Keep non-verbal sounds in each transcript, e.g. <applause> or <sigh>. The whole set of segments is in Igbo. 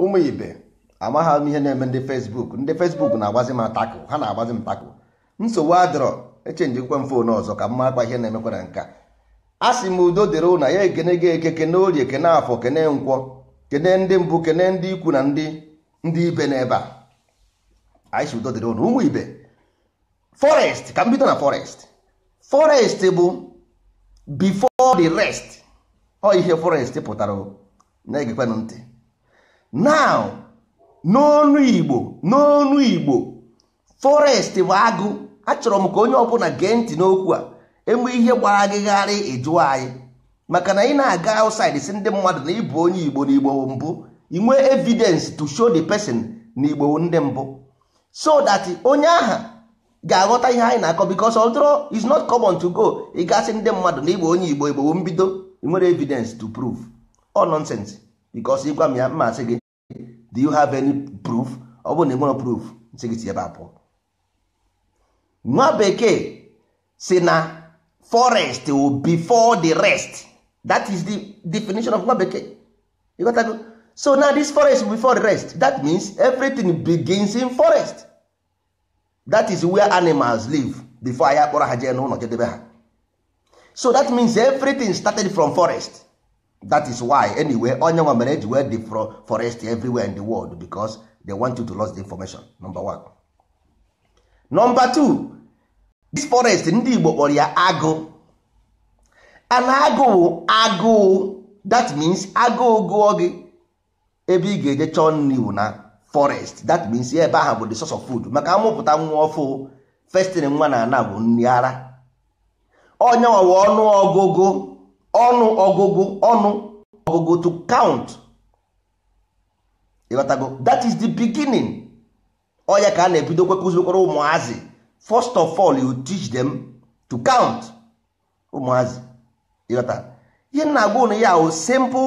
ụmụ ibe amaghị m ihe na-eme ndị fesbuk ndị fesbuk na-agbazi m atakụ ha na-agbazi m takụ nsogbu adịrọ echenjikwa m fon ọzọ ka m makwa ihe na-emekwa na nka a sị m udo dịrị ụna ya ekene gị eke kene orie kene afọ kene nkwọ kene ndị mbụ kene ndị ikwu na ndị ndị ibe n'ebe a anyị udo dịrị ụna ụmụ ibe forest ka m bido na forest forest bụ before the rest ọ ihe forest pụtara na-egekwanụ ntị now n'ọnụ igbo n'ọnụ igbo forest bụ agụ achọrọ m ka onye ọbụla gee ntị n'okwu a enwe ihe gbara agịgharị anyị maka na ị na-aga outside si ndị mmadụ na ịbụ onye igbo na igbo mbụ inwe evidence to show the person na igbo ndị mbụ so that onye aha ga-aghọta ihe anyị na-akọ because although is not common to go ị gasị ndị mmadụ na igbo onye igbo igbo mbido nwere evidence to prove all nonsense because ịgwa m ya mmasị gị do you have any proof ọ bụrụ na ị nwere proof nsị it si ebe a pụọ nwa bekee si na forest will before the rest that is the definition of nwa bekee so now this forest will before the rest that means everything begins in forest that is where animals live before Ayakora akpọrọ ha jee n'ụlọ jedebe ha so that means everything started from forest that is why anyway onye nwa mere eji wee dị forest everywhere in the world because they want you to lost the information number one. number two this forest ndị Igbo kpọrọ ya agụ an agụụ agụụ that means agụụ gụọ gị ebe ị ga-eje chọọ nri wụ na forest that means ebe ahụ bụ the source of food maka amụpụta nwa ọfụ festin nwa na ana bụ nri ara onye nwa ọnụ ọgụgụ ọnụ ọgụgụ ọnụ ọgụgụ to count ịghọtago that is the beginning ọya ka a na-ebido kwekụzikwara ụmụazị first of all you teach them to count ụmụazị ịghọta ihe na-agwa ụnụ ya o simple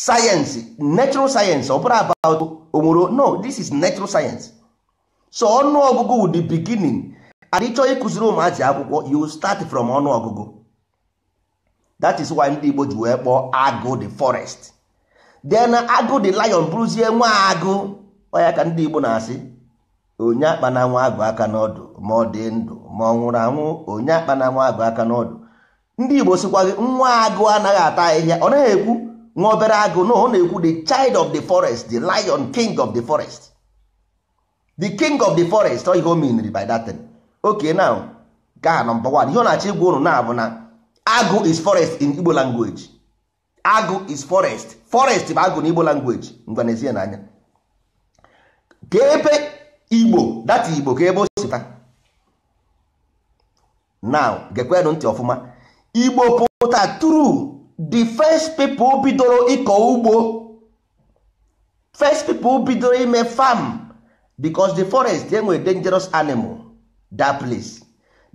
science natural science ọ bụrụ about onwero no this is natural science so ọnụ ọnụọgụgụ the beginning and ịchọọ ịkụziri ụmụazị akwụkwọ you start from ọnụ ọgụgụ. that is why ndị Igbo ji wee kpọọ agụ the forest then agụ the lion bụrụzie nwa agụ ọya ka ndị Igbo na-asị onye akpa na nwa agụ aka n'ọdụ ma ọ dị ndụ ma ọ nwụrụ anwụ onye akpa na nwa agụ aka n'ọdụ ndị Igbo sịkwa gị nwa agụ anaghị ata ahịhịa ọ naghị ekwu nwa obere agụ na ọ na-ekwu the child of the forest the lion king of the forest the king of the forest ọ ihe o miniri by that thing okay now gaa na mba wan ihe ọ na-achọ igwa ụnụ na-abụ na agụ is forest in igbo language agụ is forest forest bụ agụ n'igbo igbo language ngwanezie n'anya ka ebe igbo data igbo ka ebe o sita now gekwenụ ntị ọfụma igbo pụta tru the first people bidoro ịkọ ugbo first people bidoro ime farm because the forest enwere dangerous animal that place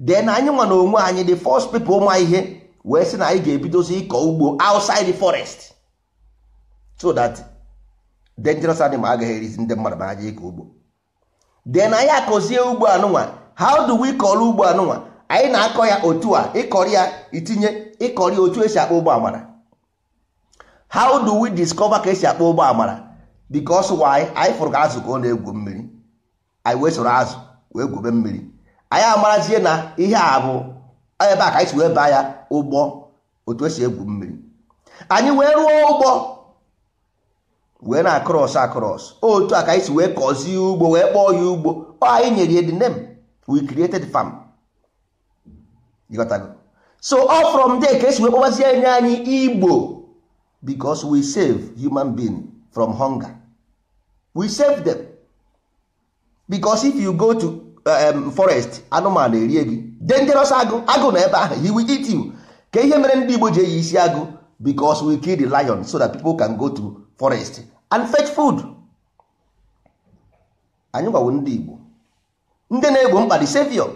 then anyị nwa n'onwe anyị the first people ma ihe wee sị na anyị ga-ebidozi ịkọ ugbo outside the forest so that dangerous animal agaghị erizi ndị mmadụ na aja ịkọ ugbo then anyị akọzie ugbo anụnwa how do we kọrọ ugbo anụnwa anyị na-akọ ya otu a ịkọrọ ya itinye ịkọrọ ya otu esi akpọ ụgbọ amara how do we discover ka esi akpọ ụgbọ amara because why anyị fụrụ ka azụ ka ọ na-egwu mmiri anyị wee soro azụ wee gwube mmiri anyị amarazie na ihe a bụ ebe a ka anyị si wee baa ya ụgbọ otu esi egwu mmiri anyị wee rụọ ụgbọ wee na akros akros otu a ka anyị si wee kọzie ugbo wee kpọọ ya ugbo anyị nyere ya the name we created farm so all from there ka esi wee kpọbazie enye anyị igbo because we save human being from hunger we save them because if you go to Um, forest anụmanụ erie gị dangerous agụ agụ na ebe ahụ he will eat you ka ihe mere ndị Igbo ji eyi isi agụ because we kill the lion so that people can go to forest and fetch food anyị gwawo ndị Igbo ndị na-egbo mkpa the savior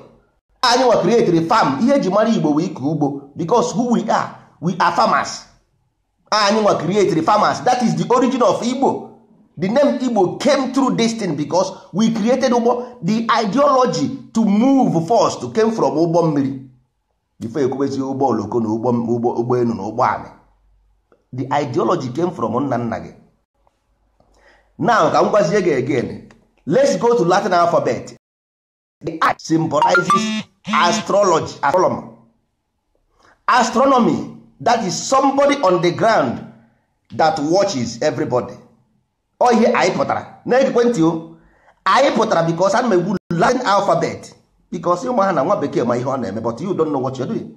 anyị nwa create farm ihe eji mara Igbo wee ike ugbo because who we are we are farmers anyị nwa create farmers that is the origin of Igbo The name Igbo came through this thing because we created Ugbo. The ideology to move first came from ụgbọ mmiri. Before ekwubezi ụgbọ oloko na ụgbọ elu na ụgbọ The ideology came from nna nna gị. Now ka m gwazie gị again. Let's go to Latin alphabet. The I symbolizes astrology, astronomer. Astronomy, that is somebody on the ground that watches everybody ọ ihe anyị pụtara na ekwentị o anyị pụtara bikos ana m egwu latin alfabet Because ụmụ ha na nwa bekee ma ihe ọ na-eme but you don't know what you're doing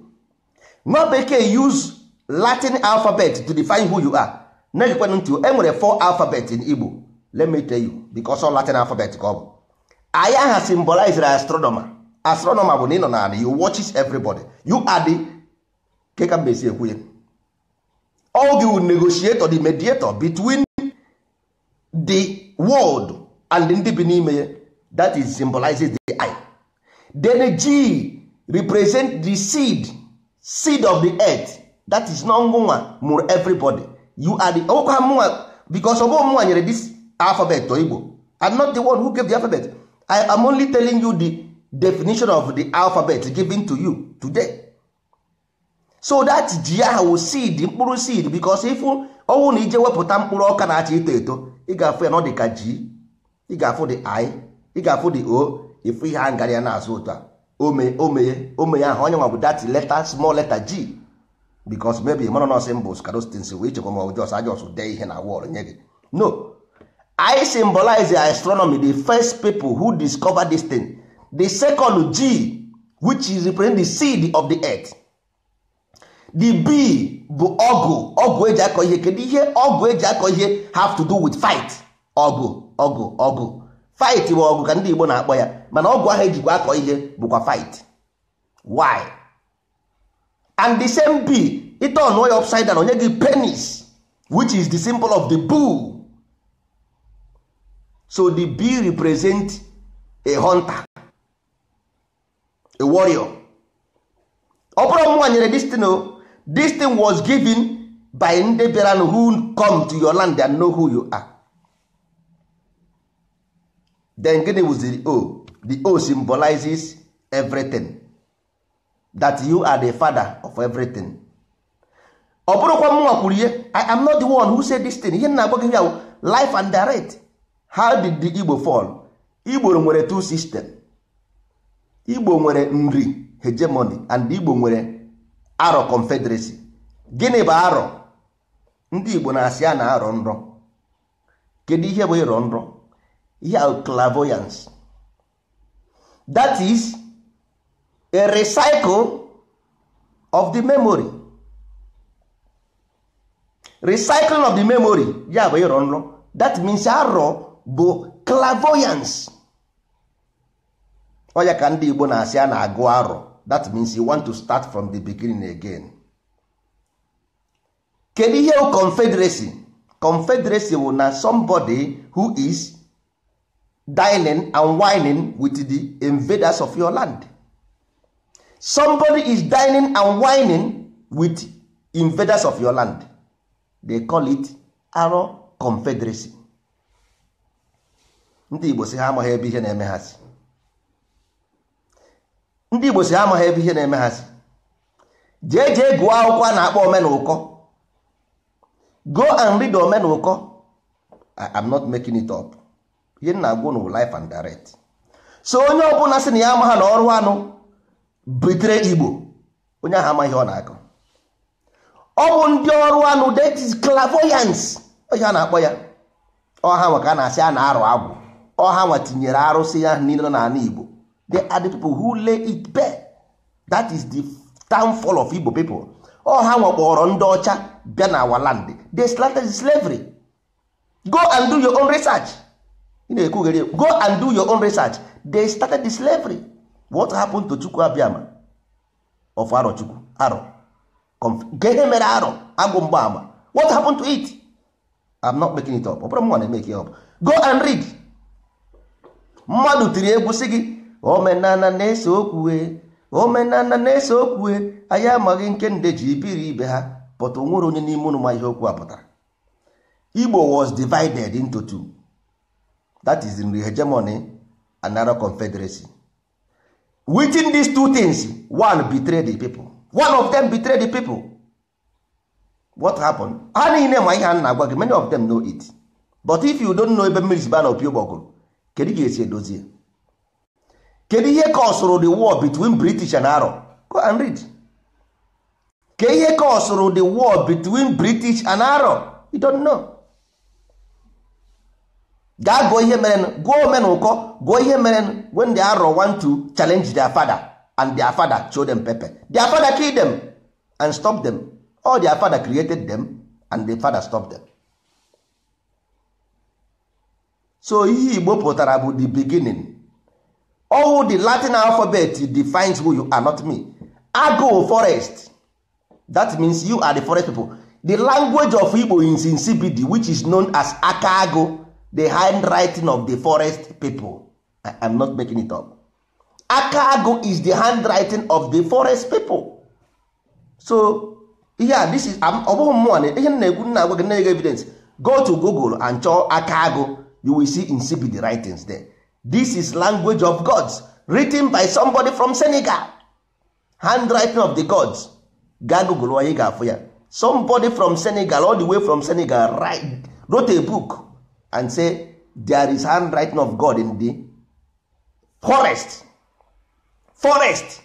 nwa bekee use latin alphabet to define who you are na ekwentị ntị o enwere four alphabet in igbo let me tell you because all latin alphabet ka ọ bụ anyị aha astronomer astronomer bụ na ị nọ na you watches everybody you are the keka you will negotiate negotiator the mediator between the world and ndị bi n'ime ya that is symbolizes the eye then g represent the seed seed of the earth that is not nwa mụrụ everybody you are the ọkwa mụnwa because ọbụ mụnwa nyere this alphabet igbo i'm not the one who gave the alphabet i am only telling you the definition of the alphabet given to you today so that ji ahụ seed mkpụrụ seed because ifu ọnwụ na ije wepụta mkpụrụ ọka na-acha eto eto ị ga-afụ ya na ọ dị ka ji ị ga-afụ dị i ị ga-afụ dị o ịfụ ihe a ngara ya na-azụ ụtọ a ome omeye omeye ahụ onye nwa dati leta small letter g because maybe mana nọọsị mbụ skarostins wee chekwa ma ọjọs ajọs dee ihe na wọl nye gị no i symbolize astronomy the first people who discover this thing the second g which is represent the seed of the earth the b bụ ọgụ ọgụ eji akọ ihe kedu ihe ọgụ eji akọ ihe have to do with fight ọgụ ọgụ ọgụ fight bụ ọgụ ka ndị Igbo na-akpọ ya mana ọgụ ahụ ejikwa akọ ihe bụkwa fight why and the same b ite ọnụọ ya upside down onye gị penis which is the symbol of the bull so the b represent a hunter a warrior ọ bụrụ nwa nyere destiny this thing was given by ndị bịara who come to your land and know who you are then gịnị the o the o symbolizes everything that you are the father of everything ọ bụrụkwa mụnwa kwuru ihe i am not the one who said this thing ihe na agwa ya, life and direct how did the igbo fall igbo nwere two system igbo nwere nri hegemony and igbo nwere arọ confederacy gịnị bụ arọ ndị igbo na-asị a na-arọ nrọ kedu ihe bụ ịrọ nrọ ihe a that is a recycle of the memory recycling of the memory ya bụ ịrọ nrọ that means arọ bụ clairvoyance ọ ya ka ndị igbo na-asị a na-agụ arọ that means you want to start from the beginning again kedu ihe confederacy confederacy bụ na somebody who is dining and wining with the invaders of your land somebody is dining and wining with invaders of your land they call it aro confederacy ndị Igbo si ha amaghị ebe ihe na-eme ha si ndị igbo si amaghị ebe ihe na-eme ha si jee jee gụọ akwụkwọ a na-akpọ omenụkọ go and read omenụkọ am not making it up ihe m na-agwa life and direct so onye ọbụla sị na ya amaghị na ọrụ anụ butere igbo onye ahụ amaghị ọ na-akọ ọ bụ ndị ọrụ anụ that is clairvoyance a na-akpọ ya ọha nwa ka a na-asị a na-arụ agwụ ọha nwa tinyere arụsị ya niile n'ala igbo They are the people who lay it bare. That is the downfall of Igbo people. Ọ ha nwekpọrọ ndị ọcha bịa na our land. They started slavery. Go and do your own research. Ị na-ekwughere go and do your own research. They started the slavery. What happened to Chukwu Abịama of Arochukwu? Aro. Gee mere aro agwụ mgbaama. What happened to it? I'm not making it up. Ọ bụrụ m nwa na-emeke ya up. Go and read. Mmadụ tiri egwu sị gị omenana na-ese okwue omenala na-ese okwue anyị amaghị nke nde ji ibiri ibe ha pụta onwere onye n'ime ụnụ ma ihe okwu a pụtara igbo was divided into two that is the hegemony and narrow confederacy within these two things one betray the people one of them betray the people what happened ha niile ma ihe a na-agwa gị many of them know it but if you don't know ebe mmiri si ba na opi ụgbọgụrụ kedu ga-esi edozi ya kedu ihe kọsụrụ the war between british and arab go and read ke ihe kọsụrụ the war between british and arab you don't know gaa gụọ ihe merenụ gụọ omen ụkọ gụọ ihe merenụ when the arab want to challenge their father and their father show them pepper their father kill them and stop them all their father created them and the father stop them so ihe igbo pụtara bụ the beginning all the latin alphabet defines who you are not me agụ forest that means you are the forest people the language of igbo in insipid which is known as akago the handwriting of the forest people i am not making it up akago is the handwriting of the forest people so yeah, this is I'm mmụọ na ihe na-egwu nna agwa gị na-ege evidence go to google and chọọ akago you will see insipid writings there this is language of gods written by somebody from senegal handwriting of the gods ga onye ga-afụ ya somebody from senegal all the way from senegal write, wrote a book and say there is handwriting of god in the forest forest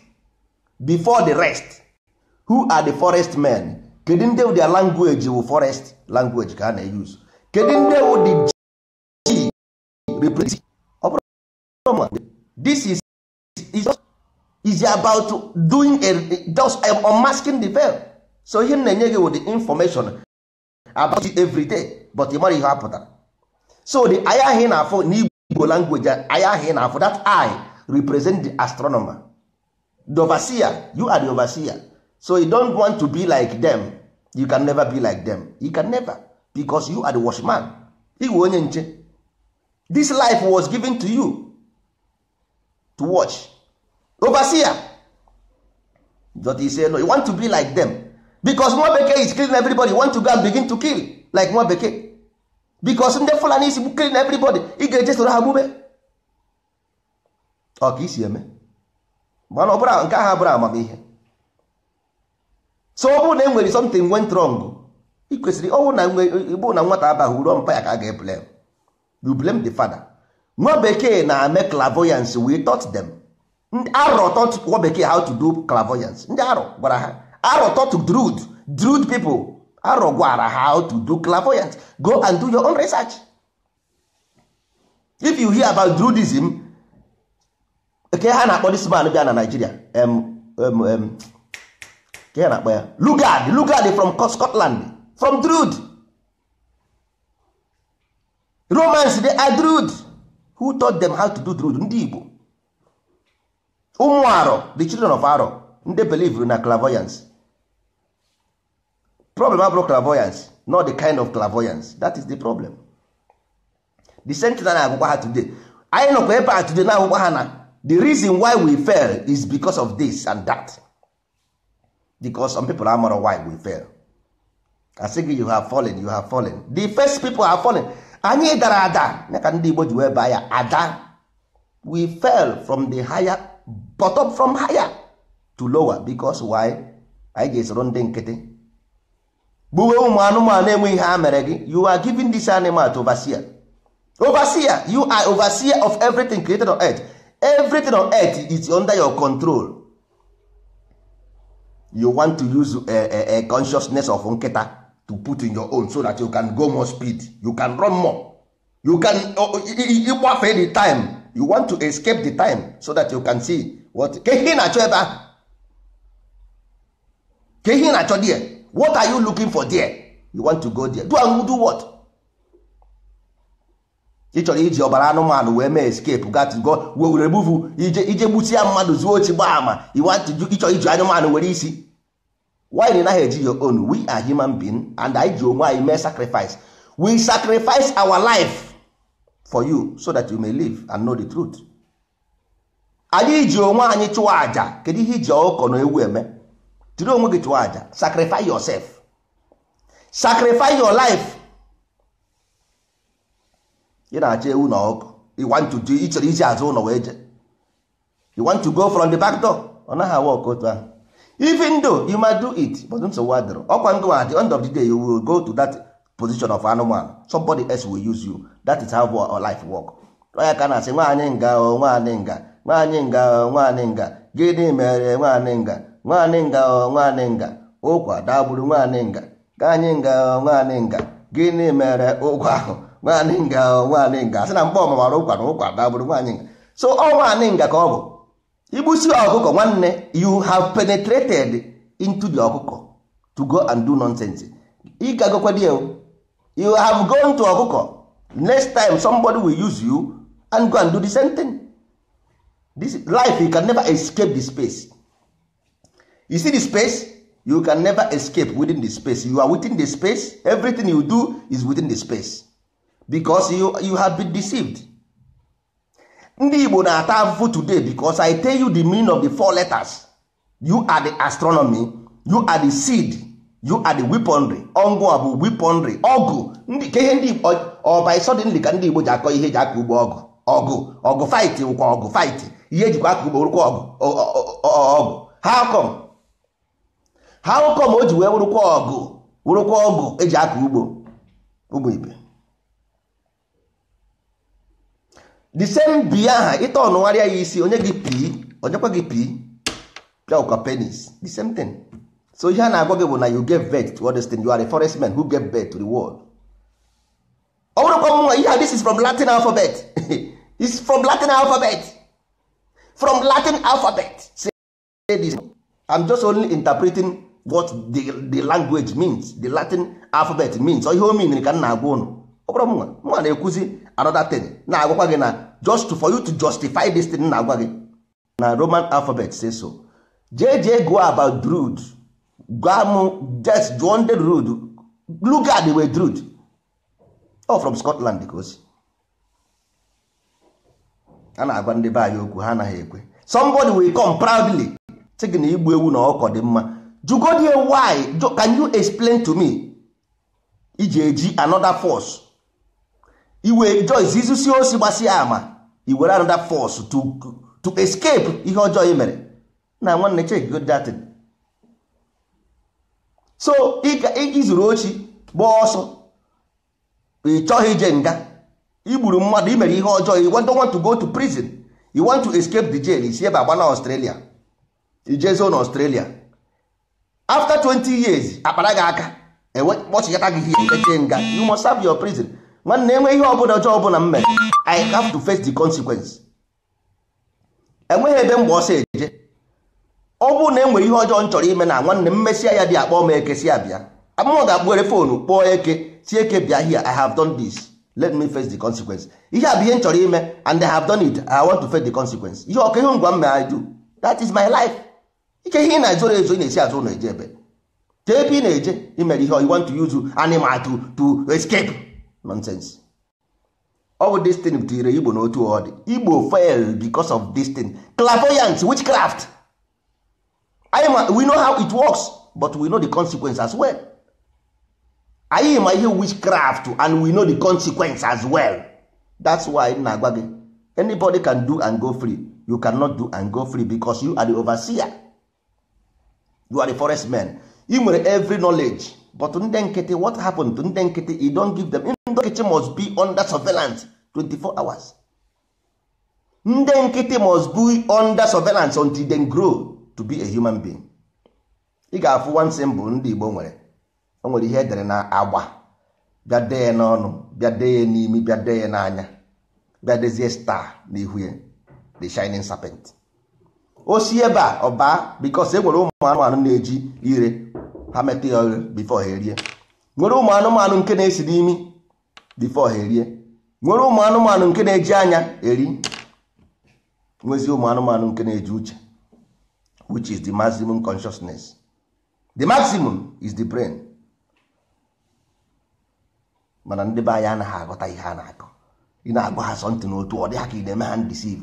before the rest who are the forest men kedu ndị wụ their language wụ forest language ka a na-eyuse kedu ndị wụ the g represent this is is just is about doing a just I'm um, unmasking the veil so he na-enye gị with the information about it every day but ịmara ihe apụtara so the anya ahụ ị na-afụ n'igbo language anya ahu ị na-afụ that eye represent the astronomer the overseer you are the overseer so you don't want to be like them you can never be like them you can never because you are the watchman iwe onye nche this life was given to you to watch overseer dọta say no you want to be like them because nwa bekee is killing everybody want to go and begin to kill like nwa bekee because ndị fulani is killing everybody ị ga-eje soro ha gbube ọ isi eme mana ọbụla nke ahụ abụrụ amamihe so ọ bụrụ na e nwere something went wrong e ị kwesịrị ọnwụ na nwata abaghị uru mpa ya ka a ga-eblem you blame the father nwa bekee na-eme clairvoyance we taught them arọ taught nwa bekee how to do clairvoyance ndị arọ gwara ha arọ taught druid druid people arọ gwara ha how to do clairvoyance go and do your own research if you hear about druidism ke ha na-akpọ this man bịa na Nigeria um, um, um, ke ha na-akpọ ya Lugard Lugard from Scotland from druid Romans they are druid who taught them how to do druid ndị igbo ụmụ arọ the children of arọ ndị believe na clairvoyance problem abụrụ clairvoyance not the kind of clairvoyance that is the problem the same thing na agwụkwa ha today anyị nọkwa ebe a today na agwụkwa ha na the reason why we fail is because of this and that because some people are amara why we fail I say you have fallen you have fallen the first people have fallen anyị dara ada ka ndị Igbo ji wee baa ya ada we fell from the higher bottom from higher to lower because why anyị ga-esoro ndị nkịtị gbuwe ụmụ anụmanụ enweghị ihe a mere gị you are giving this animal to overseer overseer you are overseer of everything created on earth everything on earth is under your control you want to use a, a, a consciousness of nkịta to put in your own so that you can go more speed you can run more you can ịgbafe oh, oh, the time you want to escape the time so that you can see what ka ihe na-achọ ebe ahụ ka na-achọ there what are you looking for there you want to go there do and do what ị chọrọ iji ọbara anụmanụ wee mee escape gatgo were remove ije ije gbusia mmadụ zuo ochi gbaa ama ịchọrọ iji anụmanụ were isi why did naghị eji your own we are human being and I, ji onwe anyị mee sacrifice we sacrifice our life for you so that you may live and know the truth anyị ji onwe anyị chụwa aja kedu ihe iji ọkụkọ na ewu eme jiri onwe gị chụwa aja sacrifice yourself sacrifice your life ị na-achọ ewu na ọkụkọ you want to do ịchọrọ iji azụ ụlọ wee je you want to go from the back door ọ naghị awa ọkụ otu ahụ even though you might do it but nsogbu adịrị ọkwa ndụ at the end of the day you will go to that position of anụmanụ somebody else will use you that is how our life work ya ka na-asị nwaanyị nga nwaanyị nga nwaanyị nga nwaanyị nga gịnị mere nwaanyị nga nwaanyị nga nwaanyị nga ụkwa dagburu nwaanyị nga ka anyị nga nwaanyị nga gịnị mere ụkwa ahụ nwaanyị nga nwaanyị nga Asị na mgbe ọmamara ụkwa na ụkwa dagburu nwaanyị nga so ọ nwaanyị nga ka ọ bụ igbusi ọkụkọ nwanne you have penetrated into the ọkụkọ to go and do nonsense ị gagokwadi you have gone to ọkụkọ next time somebody will use you and go and do the same thing this life you can never escape the space you see the space you can never escape within the space you are within the space everything you do is within the space because you, you have been deceived ndị igbo na-ata afụfụ today because i tell you the meaning of the four letters you are the astronomy you are the seed you are the weaponry ọngụ a bụ weaponry ọgụ ka ihe ndị igbo ọba suddenly ka ndị igbo ji akọ ihe eji aka ugbo ọgụ ọgụ ọgụ fight wụkwa ọgụ fight ihe ejikwa aka ugbo rụkwa ọgụ ọgụ how come how come o ji wee wụrụkwa ọgụ wụrụkwa ọgụ eji aka ugbo ugbo ibe the same bie aha ịta ọnụgharịa ya isi onye gị pii onyekwa gị pii pịakwa penis the same thing so ihe a na-agwa gị bụ na you get vet to understand you are a forest man who get vet to the world ọ bụrụkwa nwa ihe this is from Latin alphabet <laughs> is from Latin alphabet from Latin alphabet say this I'm just only interpreting what the, the language means the Latin alphabet means ọ ihe o mean ka m na-agwa ụnụ ọ bụrụ nwa na-ekwuzi another thing na-agwakwa gị na just for you to justify this thing na-agwa gị na roman alphabet say so jee go about druid gam just jụọ ndị druid lugard wee druid oh from scotland ka osi a na-agwa ndị be anyị okwu ha anaghị ekwe somebody will come proudly sị gị na igbu ewu na ọkọ dị mma jugodi why can you explain to me iji eji another force iwe Joyce izusi osi gbasi ama iwere another force to escape ihe ọjọọ i mere na nwanne check good that so izuru ochi gbaa ọsọ ị chọghị ije nga igburu mmadụ imere ihe ọjọọ you don't want to go to prison you want to escape the jail isi ebe agba na Australia ijezo na Australia after 20 years akpara gị aka kpọchikata gị ihe eche nga you must serve your prison mana na-enwe ihe ọbụla ọjọọ ọbụla m mere i have to face the consequence enweghị ebe mgbe ọsọ eje ọ bụrụ na enwere ihe ọjọọ m chọrọ ime na nwanne m mesịa ya dị akpọ m eke si abịa amụọ ga-akpụghere foonu kpọọ eke si eke bịa here i have done this let me face the consequence ihe a bụ ihe m chọrọ ime and i have done it i want to face the consequence ihe ọka ihe ngwa m mere do that is my life ike ihe ị na-ezoro ezo na-esi azụ ụlọ eje ebe tee ebe ị na-eje imere ihe you want to use animal to to escape nonsense ọ bụ destin butere igbo n'otu ọ dị igbo fail because of thing. clairvoyance witchcraft anyị we know how it works but we know the consequence as well anyị ma ihe witchcraft and we know the consequence as well that's why m na-agwa gị anybody can do and go free you cannot do and go free because you are the overseer you are the forest man ị nwere every knowledge but ndị nkịtị what happened to ndị nkịtị you don't give them ndị nkịtị must be under surveillance 24 hours ndị nkịtị must be under surveillance until they grow to be a human being ị ga-afụ one symbol ndị Igbo nwere o nwere ihe edere na agba bịa dee n'ọnụ bịa dee n'imi bịa dee n'anya bịa dezie star n'ihu ya the shining serpent o si ebe a ọba because e nwere ụmụ anụmanụ na-eji ire ha metụ ya before ha erie nwere ụmụ anụmanụ nke na-esi n'imi before ha erie nwere ụmụ anụmanụ nke na-eji anya eri nwezi ụmụ anụmanụ nke na-eji uche which is the maximum consciousness the maximum is the brain mana ndị be anyị anaghị aghọta ihe a na-akọ ị na-agwa ha sọntị n'otu ọ dị ha ka ị na-eme ha ndisiv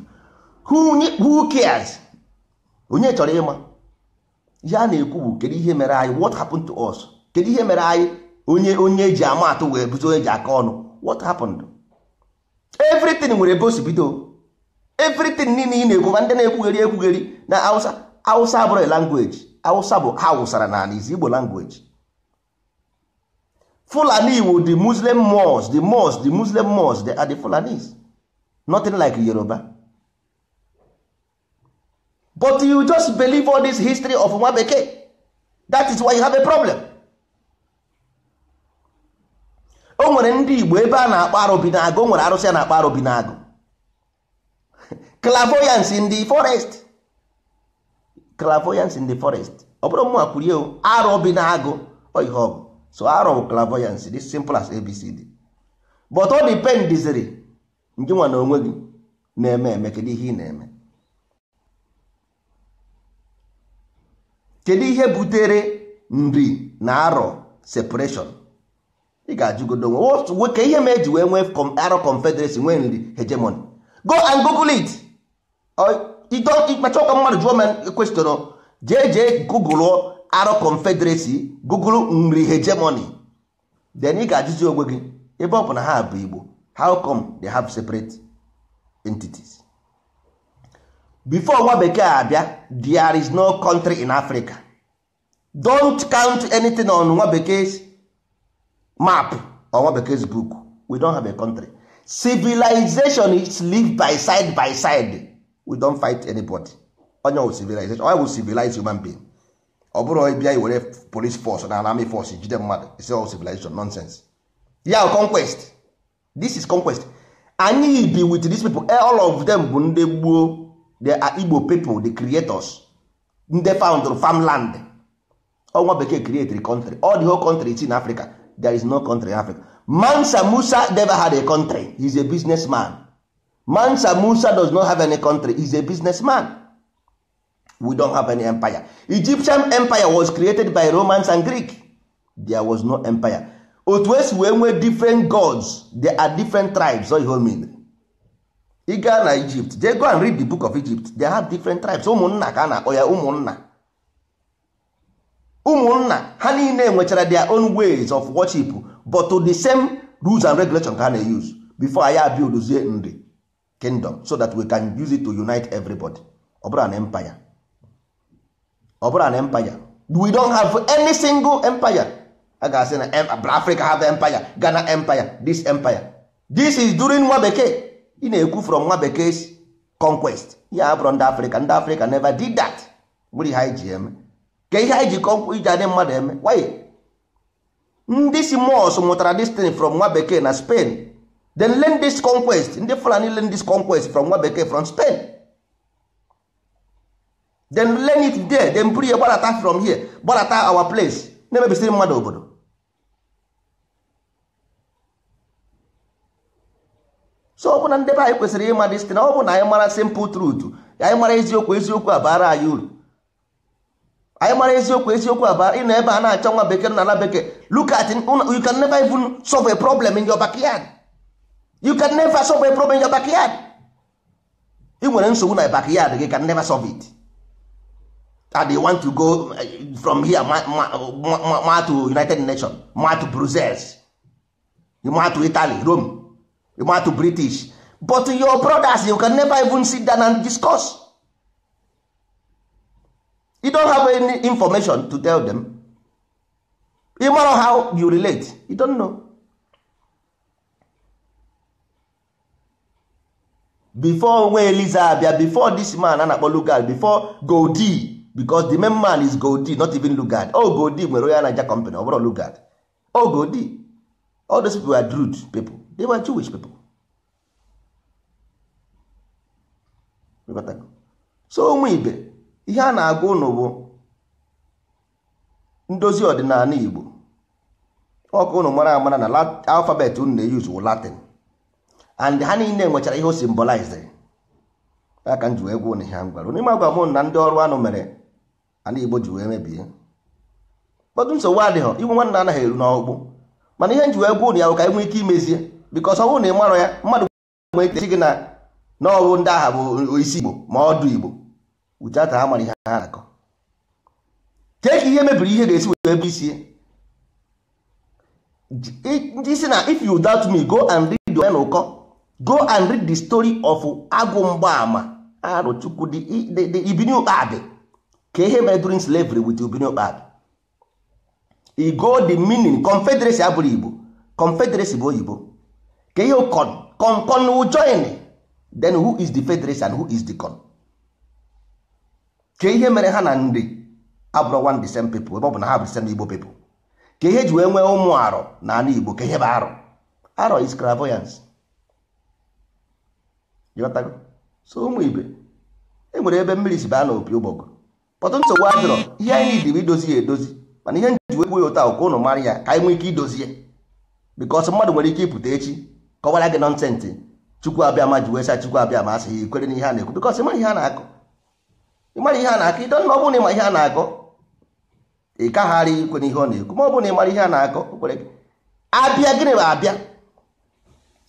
who cares onye chọrọ ịma ihe a na-ekwu bụ kedu ihe mere anyị what happened to us kedu ihe mere anyị onye onye eji ama atụ wee buzo onye eji aka ọnụ what happened everything nwere ebe bido everything niile ị na-ekwu ma ndị na-ekwugheri ekwugheri na language Hausa bụ ha wụsara n'ala izi Igbo language Fulani wu the Muslim Mos, the Mos, the Muslim Mos, they are the Fulanis nothing like Yoruba but you just believe all this history of nwa bekee that is why you have a problem o nwere ndị igbo ebe a na-akpọ arụbi na-agụ o nwere arụsị a na-akpọ arụbi na-agụ <laughs> clavoyancy in the forest clavoyancy in the forest ọ bụrụ mma kwurie arụbi na-agụ ihe ọ bụ so arọ bụ clavoyancy dị simple as abcd but ọ dipendiziri njinwa na onwe gị na-eme eme kedu ihe ị na-eme kedu ihe butere nri na arọ separation ị ga-ajụgodo onwe ka ihe ma eji wee nwee arọ confederacy nwee nri hegemony go and google it ịkpacha ụka mmadụ jụọ m e kwestịrọ jee jee google arọ confederacy google nri hegemony then ị ga-ajụzi onwe gị ebe ọ bụ na ha bụ igbo how come they have separate entities before nwa bekee abịa there is no country in africa don't count anything on nwa bekee map ọnwa bekee book we don't have a country civilization is live by side by side we don't fight anybody onye wụ civilization onye wụ civilize human being ọ bụrụ bịa were police force na army force jide mmadụ isi ọ oh, civilization nonsense ya conquest this is conquest anyị bi with these people eh, all of them bụ ndị gboo they are uh, igbo people the creators ndị found farmland ọnwa bekee create the country all the whole country is in africa there is no country in africa mansa musa never had a country he's a businessman mansa musa does not have any country he's a businessman we don't have any empire egyptian empire was created by romans and greek there was no empire otu esi wee nwee different gods there are different tribes oyiho so mean ị na egypt they go and read the book of egypt they have different tribes ụmụnna ka a na-akpọ ya ụmụnna ụmụnna ha niile nwechara their own ways of worship but to the same rules and regulations ka ha na-use before anyị the nri kingdom so that we can use it to unite everybody over an empire over an na empire we don't have any single empire a ga-asị na Africa have empire Ghana empire this empire this is during nwa bekee ị na-ekwu from nwa conquest ya abụrụ ndị Africa ndị Africa never did that nwere ihe GM. ka ihe anyị ji kọnkwụ iji adị mmadụ eme why ndị si mos mụtara this thing from nwa na Spain then learn this conquest ndị Fulani learn conquest from nwa bekee from Spain then learn it there then buru ya gbarata from here gbarata our place na-emebisiri mmadụ obodo so ọ bụ na ndị be anyị kwesịrị ịma this ọ bụ na anyị mara simple truth anyị mara eziokwu eziokwu abara anyị uru anyị mara eziokwu eziokwu aba ị na ebe a na-achọ nwa bekee na ala bekee look you can never even solve a problem in your backyard you can never solve a problem in your backyard ị nwere nsogbu na backyard gị can never solve it and they want to go eh, from here ma, to united nations ma to brussels ma to italy rome ma to british but your brothers you can never even sit down and discuss you don't have any information to tell them you know how you relate you don't know before nwa eliza abịa before this man a na-akpọ lugard before godi because the main man is godi not even lugard oh godi nwere onye anaja company ọ bụrụ lugard oh godi all those people were rude people they were jewish people so ụmụ ibe ihe a na-agụ ụnụ bụ ndozi ọdịnala Igbo ọkụ ụnụ mara amara na alfabet ụnụ na-eyuzu wụ Latin and ha niile nwechara ihe o simbolized aka m ji wee gwa ụnụ ihe m gwara n'ime agwa m na ndị ọrụ anụ mere ala Igbo ji wee mebie kpọtụ nsogbu adịghị inwe nwanna anaghị eru n'ọkpụkpụ mana ihe m ji wee gwa ụnụ ya bụ ka anyị nwee ike imezie bikọs ọgwụ bụrụ na ị marọ ya mmadụ gwara gị na n'ọrụ ndị agha bụ isi Igbo ma ọdụ Igbo without ha mara ihe ha na-akọ kee ka ihe mebiri ihe ga-esi wee ebe isi ndị si na if you doubt me go and read the ụkọ go and read the story of agụ mgbaama arụchukwu ah, the ibiniokpadị ka ihe mere during slavery with ibiniokpadị e go the meaning confederacy abụrụ igbo confederacy bụ oyibo ka ihe con con join then who is the federacy and who is the con ka ihe mere ha na ndị abụrụ one the same people ebe ọ bụ na ha bụ the igbo people ka ihe ji wee nwee ụmụ arọ na ala igbo ka ihe bụ arọ arọ is clairvoyance ghọtago so ụmụ ibe e nwere ebe mmiri si baa na opi ụgbọgụ pọtụ nsogbu adịrọ ihe anyị dị bụ idozi ya edozi mana ihe nji wekwu ya ụta ụka ụnụ mara ya ka anyị nwee ike idozi ya bikọs mmadụ nwere ike ịpụta echi kọwara gị nọ nọnsensị chukwu abịa ma ji wee sa chukwu abịa ma asị ya ikwere n'ihe a na-ekwu bikọs ịma ihe a na-akụ ịmara ihe a na-akọ ịdọ nna ọ bụrụ na ịma ihe a na-akọ ị kagharị ikwe ihe ọ na-ekwu ma ọ bụrụ na ịmara ihe a na-akọ abịa gịnị bụ abịa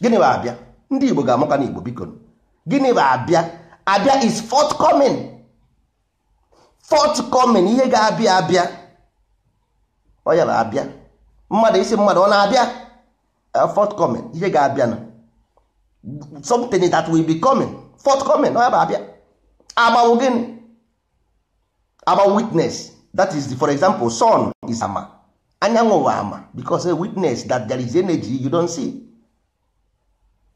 gịnị bụ abịa ndị Igbo ga-amụka n'Igbo biko gịnị bụ abịa abịa is forthcoming forthcoming ihe ga-abịa abịa ọ ya bụ abịa mmadụ isi mmadụ ọ na-abịa uh, forthcoming ihe ga-abịa na something that will be coming forthcoming ọ ya bụ abịa agbanwe gịnị about witness that is the, for example sun is ama anyanwụ ama because a witness that there is energy you don't see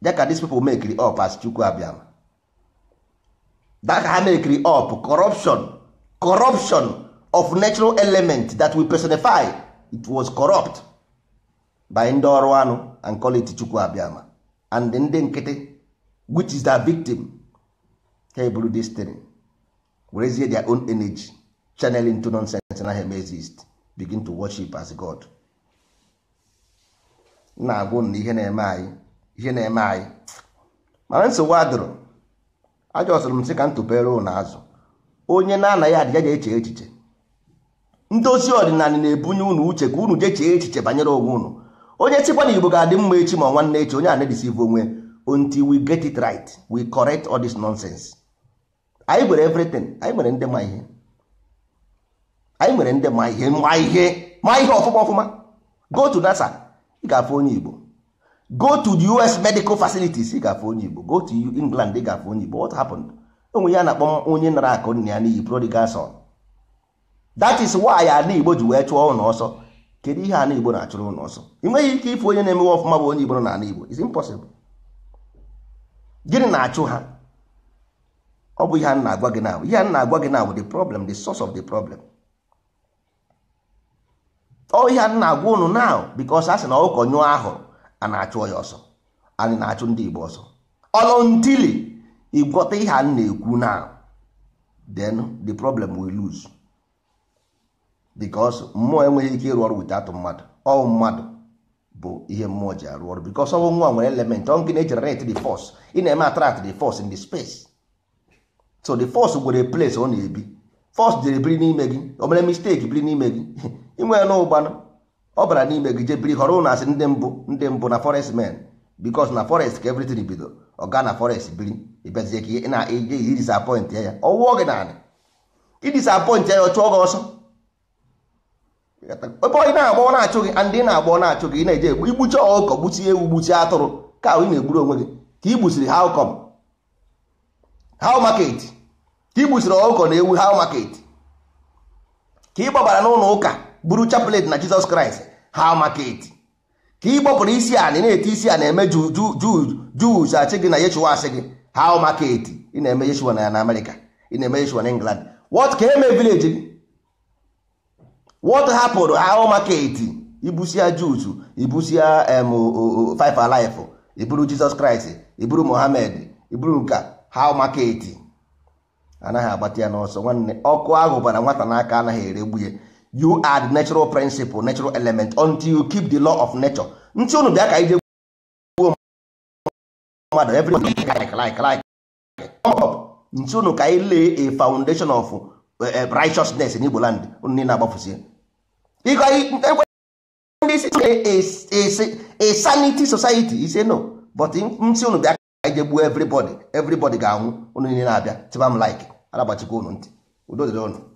that these people make it up as chukwu abịama that ha make it up corruption corruption of natural element that we personify it was corrupt by ndị ọrụ anụ and call it chukwu abịama and ndị nkịtị which is their victim ha eburu this thing werezie their own energy channel into nonsense na hem exist begin to worship as god na-agwụ na ihe na-eme anyị ihe na-eme anyị mana nsogbu adụrụ ajọ sụrụ m sị ka ntụpere na azụ onye na-anaghị adịja ga eche echiche ndozi ọdịnala na-ebunye ụnụ uche ka unu jechee echiche banyere onwe ụnụ. onye sikwa na igbo ga-adị mma echi ma nwanne echi onye a na-edisive onwe until we get it right we correct all this nonsense anyị gwere everything anyị nwere ndị ma ihe anyị nwere ndị ma ihe ma ihe ma ihe ọfụma ọfụma go to nasa ị ga-afụ onye igbo go to the us medical facilities ị ga-afụ onye igbo go to england ị ga-afụ onye igbo what happened onwe ya na-akpọ onye nara akụ nna ya n'iyi prodigal son that is why ala igbo ji wee chụọ ụlọ ọsọ kedu ihe ala igbo na-achụrụ ụlọ ọsọ ị ike ịfụ onye na-emewe ọfụma bụ onye igbo nọ n'ala igbo impossible gịnị na-achụ ha ọ bụ ihe a na-agwa gị na ihe a na-agwa gị na bụ the problem the source of the problem ọ oh, ihe na-agwa unu na because a sị na ọkụkọ nyụọ ahụrụ a na-achụ ya ọsọ anyị na-achụ ndị Igbo ọsọ ọlụntili ịgwọta ihe a na-ekwu na then the problem we lose because mmụọ enweghị ike ịrụ ọrụ without mmadụ ọ mmadụ bụ ihe mmụọ ji arụ ọrụ because ọnwụ nwa nwere element ọ nke na-egenerate the force ị na-eme attract de fos in the space so the fos nwere place ọ na-ebi force jere biri n'ime gị o mere biri n'ime gị <laughs> inwe na ụgbanụ ọ bara n'ime gị jebiri họrọ ụlọ asị ndị mbụ ndị mbụ na forest men because na forest ka everything bido ọ gaa na forest biri ịbịazie ka ị na-eje iri disappoint ya ọwụọ gị naanị idisappoint ya ọ chụọ gị ọsọ ebe ọ na-agba na-achụ gị ndị ị na-agba na-achụ gị ị na-eje egbu igbuchi ọkọ gbuchie ewu gbuchie atụrụ ka ị na-egburu onwe gị ka ị gbusiri how come how market ka ị gbusiri ọkụkọ na ewu how market ka ị gbabara n'ụlọ ụka buru chapelet na jizọs kraịst ha market ka ị gbọpụrụ isi anị na ete isi a na-eme juz achị gị na yeshua asị gị ha market ị na-eme yeshua na amerịka ị na-eme yeshua na england wọt ka eme vileji gị wọt hapụrụ ha market ibusia juz ibusia em five alive iburu jizọs kraịst iburu mohamed iburu nka ha market anaghị agbata ya n'ọsọ nwanne ọkụ ahụ bara nwata n'aka anaghị eregbu ya you are the natural principle natural element until you keep the law of nature ntị unu bịa ka ije mmadụ ntị unu ka lay a foundation of eh, eh, righteousness in Igbo land unu niile agbafuzie a sanity society ise no but ntị unu bịa ka ije gbuo everybody everybody ga-anwụ unu niile na-abịa unu ntị udo dịrị unu